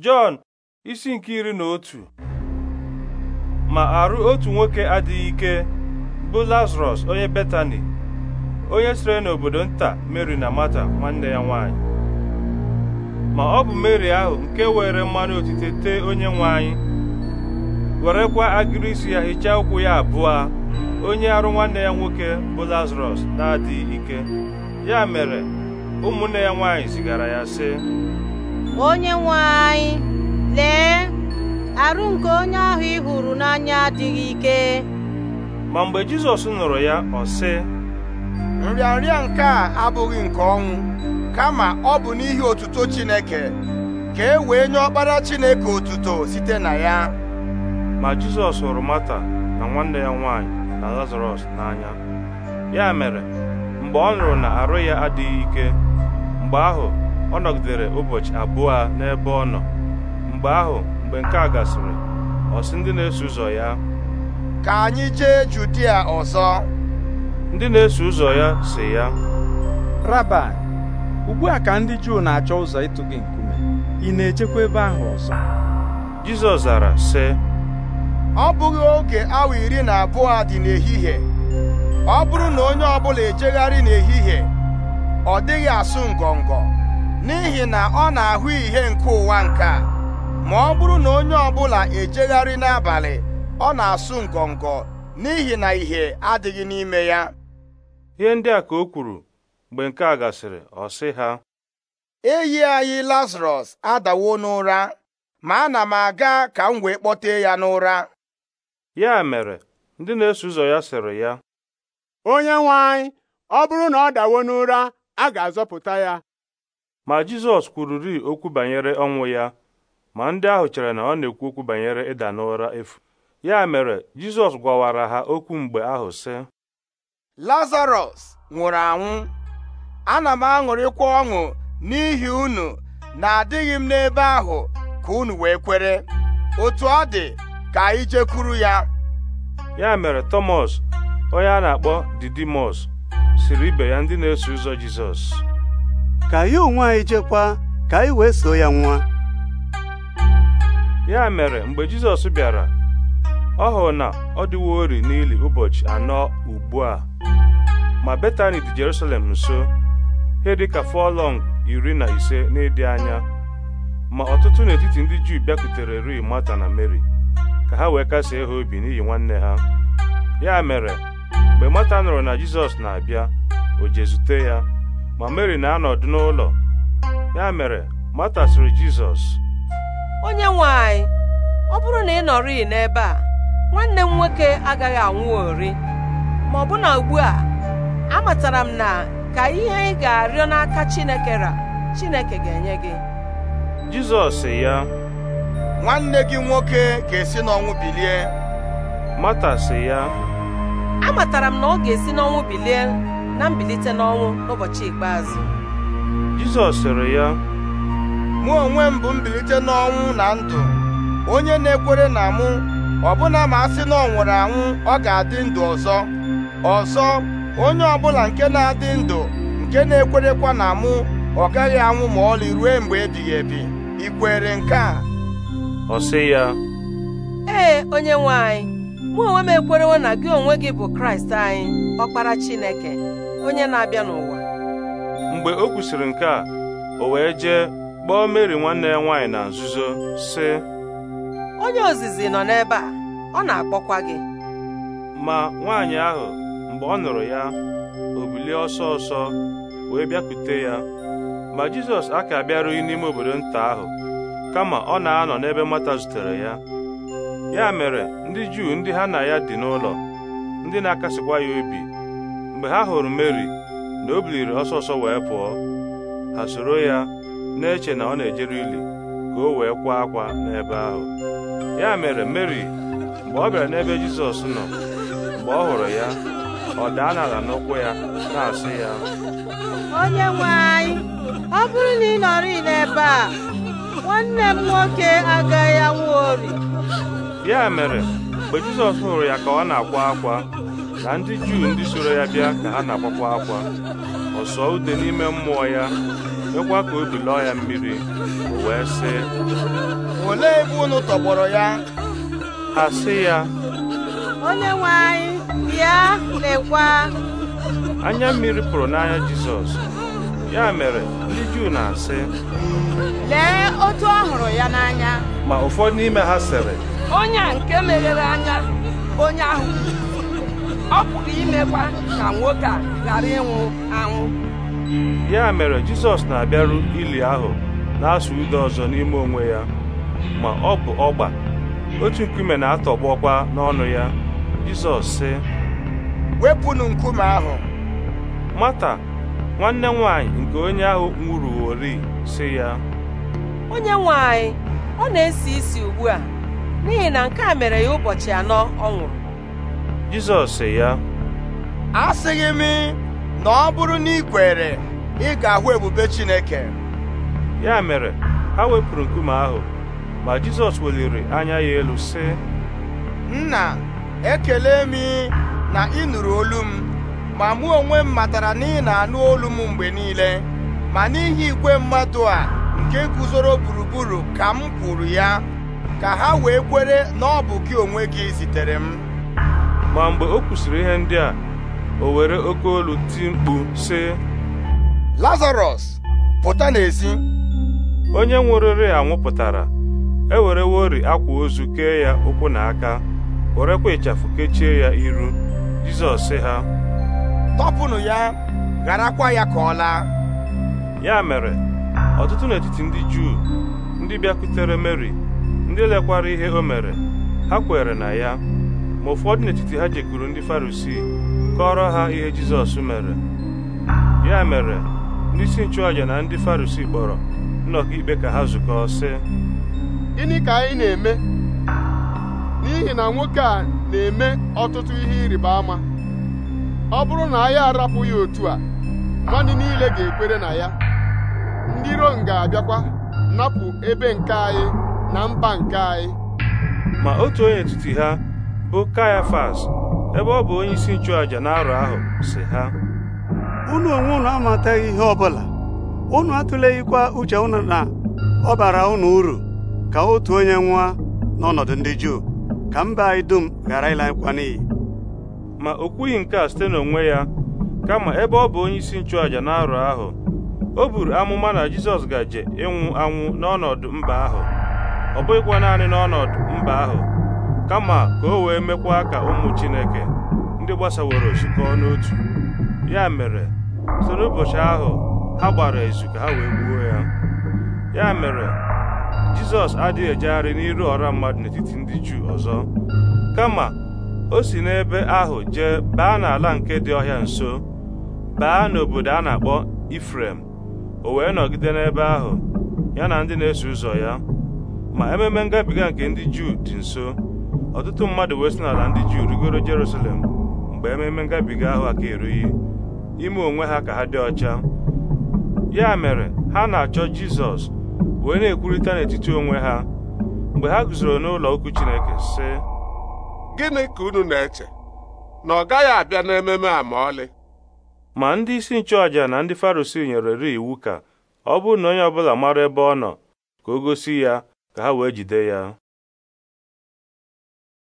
Jọn isi nke iri na otu ma arụ otu nwoke adịghị ike bụ Lazarọs onye Betani onye sire n'obodo nta Meri na Mata nwanne ya nwanyị ma ọ bụ Meri ahụ nke were mmanụ otite tee onye nwanyị, werekwa agịrị isi ya hichaa ụkwụ ya abụọ onye arụ nwanne ya nwoke bụ Lazarọs na-adịghị ike ya mere ụmụnne ya nwanyị zigara ya sị onye nwe anyị lee arụ nke onye ahụ ị hụrụ n'anya adịghị ike ma mgbe Jizọs nụrụ ya ọ sị nrịanrịa nke a abụghị nke ọnwụ kama ọ bụ n'ihi otuto Chineke ka e wee nye ọkpara Chineke otuto site na ya ma Jizọs hụrụ Mata na nwanne ya nwanyị na Lazarọs n'anya ya mere mgbe ọ nụrụ na arụ ya adịghị ike mgbe ahụ ọ nọgidere ụbọchị abụọ n'ebe ọ nọ mgbe ahụ mgbe nke a gasịrị ọ sị ndị na-eso ụzọ ya ka anyị jee Judia ọzọ ndị na-eso ụzọ ya si ya Raba ugbu a ka ndị Juu na-achọ ụzọ ịtụ gị nkume ị na-ejekwa ebe ahụ ọzọ Jizọs zara sị ọ bụghị oge awa iri na abụọ dị n'ehihie ọ bụrụ na onye ọbụla ejegharị n'ehihie ọ dịghị asụ ngọngọ n'ihi na ọ na-ahụ ihe nke ụwa nke a ma ọ bụrụ na onye ọbụla ejegharị n'abalị ọ na-asụ ngọngọ n'ihi na ihe adịghị n'ime ya ihe ndị a ka o kwuru mgbe nke a gasịrị ọ sị ha enyi anyị Lazarọs adawo n'ụra ma ana m aga ka m wee kpọtee ya n'ụra ya mere ndị na-eso ụzọ ya sịrị ya onye nwe ọ bụrụ na ọ dawo n'ụra a ga-azọpụta ya ma Jizọs kwururi okwu banyere ọnwụ ya ma ndị ahụ chere na ọ na-ekwu okwu banyere ịda n'ụra efu ya mere Jizọs gwawara ha okwu mgbe ahụ sị Lazarọs nwụrụ anwụ ana m aṅụrịkwa ọṅụ n'ihi unu na adịghị m n'ebe ahụ ka unu wee kwere otu ọ dị ka anyị jekwuru ya ya mere Tọmọs onye a na-akpọ Didimọs siri ibe ya ndị na-eso ụzọ Jizọs ka anyị onwe anyị jekwa ka anyị wee so ya nwa ya mere mgbe Jizọs bịara ọ hụrụ na ọ dịwo ori n'ili ụbọchị anọ ugbu a ma Betani dị Jerusalem nso ihe dịka fọlọng iri na ise n'ịdị anya ma ọtụtụ n'etiti ndị Juu bịakutere ri Mata na Meri ka ha wee kasie ha obi n'ihi nwanne ha ya mere mgbe Mata nụrụ na Jizọs na-abịa o zute ya ma Mary na-anọdụ n'ụlọ ya mere Mata sịrị Jizọs onye nwanyị, ọ bụrụ na ị nọrịị n'ebe a nwanne m nwoke agaghị anwụ ori, ma ọ bụ na ugbu a amatara m na ka ihe ị ga-arịọ n'aka Chineke ra Chineke ga-enye gị Jizọs ya nwanne gị nwoke ga-esi n'ọnwụ bilie Mata ya amatara m na ọ ga-esi n'ọnwụ bilie na mbilite n'ọnwụ n'ụbọchị ikpeazụ Jizọs sịrị ya mụ onwe m bụ mbilite n'ọnwụ na ndụ onye na-ekwere na mụ ọbụna ma a sị na ọ nwụrụ anwụ ọ ga-adị ndụ ọzọ ọzọ onye ọbụla nke na-adị ndụ nke na-ekwerekwa na mụ ọ gaghị anwụ ma ọlị ruo mgbe ebighị ebi ị nke a ọ sị ya ee onye nwe anyị mụ onwe m ekwerewo na gị onwe gị bụ kraịst anyị ọkpara chineke onye na-abịa n'ụwa mgbe o kwusịrị nke a o wee jee kpọọ meri nwanne ya nwaanyị na nzuzo si onye ozizi nọ n'ebe a ọ na-akpọkwa gị ma nwaanyị ahụ mgbe ọ nụrụ ya o bilie ọsọ ọsọ wee bịakwute ya ma jizọs aka bịarughị n'ime obodo nta ahụ kama ọ na-anọ n'ebe mata zutere ya ya mere ndị Juu ndị ha na ya dị n'ụlọ ndị na-akasịkwa ya obi mgbe ha hụrụ Meri na o biliri ọsọ wee pụọ ha soro ya na-eche na ọ na-ejere ili ka o wee kwa akwa n'ebe ahụ ya mere Meri mgbe ọ bịara n'ebe Jizọs nọ mgbe ọ hụrụ ya ọ daa n'ala n'ụkwụ ya na-asị ya onye anyị ọ bụrụ na ị nọrị n'ebe a nwanne m nwoke agaghị anwụ ori ya mere mgbe Jizọs hụrụ ya ka ọ na-akwa akwa na ndị Juu ndị soro ya bịa ka ha na-akwakwa akwa ọ sọọ ude n'ime mmụọ ya mekwa ka obi lọọ ya mmiri o wee sị olee ebe unu tọgbọrọ ya ha sị ya onye nwe anyị bịa lekwa anya mmiri pụrụ n'anya Jizọs ya mere ndị Juu na-asị lee otu ọ hụrụ ya n'anya ma ụfọdụ n'ime ha sịrị onye a nke meghere anya onye ahụ ọ pụrụ imekwa ka nwoke a ghara ịnwụ anwụ ya mere jizọs na-abịaru ili ahụ na-asụ ude ọzọ n'ime onwe ya ma ọ bụ ọgba otu nkume na-atọgbọkwa n'ọnụ ya jizọs sị wepụnụ nkume ahụ mata nwanne nwanyị nke onye ahụ nwụrụ ori sị ya onye nwanyị ọ na-esi isi ugbu a n'ihi na nke a mere ya ụbọchị anọ ọ nwụrụ Jizọs sị ya asịghị m na ọ bụrụ na ị kwere ị ga-ahụ ebube Chineke ya mere ha wepụrụ nkume ahụ ma Jizọs weliri anya ya elu sị nna ekele m na ị nụrụ olu m ma mụ onwe m matara na ị na-anụ olu m mgbe niile ma n'ihi igwe mmadụ a nke guzoro gburugburu ka m kwuru ya ka ha wee kwere na ọ bụ gị onwe gị zitere m ma mgbe o kwusịrị ihe ndị a o were oke olu ti mkpu sị Lazarọs pụta n'ezi onye nwụrịrị anwụpụtara ewerewori akwa ozu kee ya ụkwụ na aka werekwa ịchafụ kechie ya iru Jizọs ha tọpụnụ ya gharakwa ya ka ọ laa ya mere ọtụtụ n'etiti ndị Juu ndị bịakwutere Meri ndị lekwara ihe o mere ha kwere na ya ma ụfọdụ n'etiti ha jekuru ndị farisii kọrọ ha ihe jizọs mere ya mere ndị isi nchụàja na ndị farisii kpọrọ nnọkọ ikpe ka ha zukọọ sị gịnị ka anyị na-eme n'ihi na nwoke a na-eme ọtụtụ ihe ịrịba ama ọ bụrụ na anyị arapụ otu a mmadụ niile ga-ekwere na ya ndị Rom ga-abịakwa napụ ebe nke anyị na mba nke anyị ma otu onye etiti ha bụ Kayafas ebe ọ bụ onye isi nchụàja n'arọ ahụ si ha unu onwe unu amataghị ihe ọbụla unu atụleghịkwa uche unu na ọ bara unu uru ka otu onye nwa n'ọnọdụ ndị Juu ka mba anyị dum ghara ịlankwa n'iyi ma o kwughị nke a site n'onwe ya kama ebe ọ bụ onye isi nchụàja n'arọ ahụ o buru amụma na Jizọs gaje ịnwụ anwụ n'ọnọdụ mba ahụ ọ bụghịkwa naanị n'ọnọdụ mba ahụ kama ka o wee mekwa ka ụmụ Chineke ndị gbasaworo zukọ n'otu ya mere so n'ụbọchị ahụ ha gbara ezu ka ha wee gbuo ya ya mere Jizọs adịghị ejegharị n'iru ọra mmadụ n'etiti ndị Juu ọzọ kama o si n'ebe ahụ jee baa n'ala nke dị ọhịa nso baa n'obodo a na-akpọ Ifrem o wee nọgide n'ebe ahụ ya na ndị na-eso ụzọ ya ma ememe ngabiga nke ndị juu dị nso ọtụtụ mmadụ wee n'ala ndị juu rigoro jerusalem mgbe ememe ngabiga ahụ aka erughị ime onwe ha ka ha dị ọcha ya mere ha na-achọ jizọs wee na-ekwurịta n'etiti onwe ha mgbe ha guzoro n'ụlọ okwu chineke sị gịnị ka unu na-eche na ọ gaghị abịa n'ememe a ma ọlị ma ndị isi nchụàjà na ndị farosi nyere iwu ka ọ bụrụ na onye ọbụla mara ebe ọ nọ ka o gosi ya ka ha wee jide ya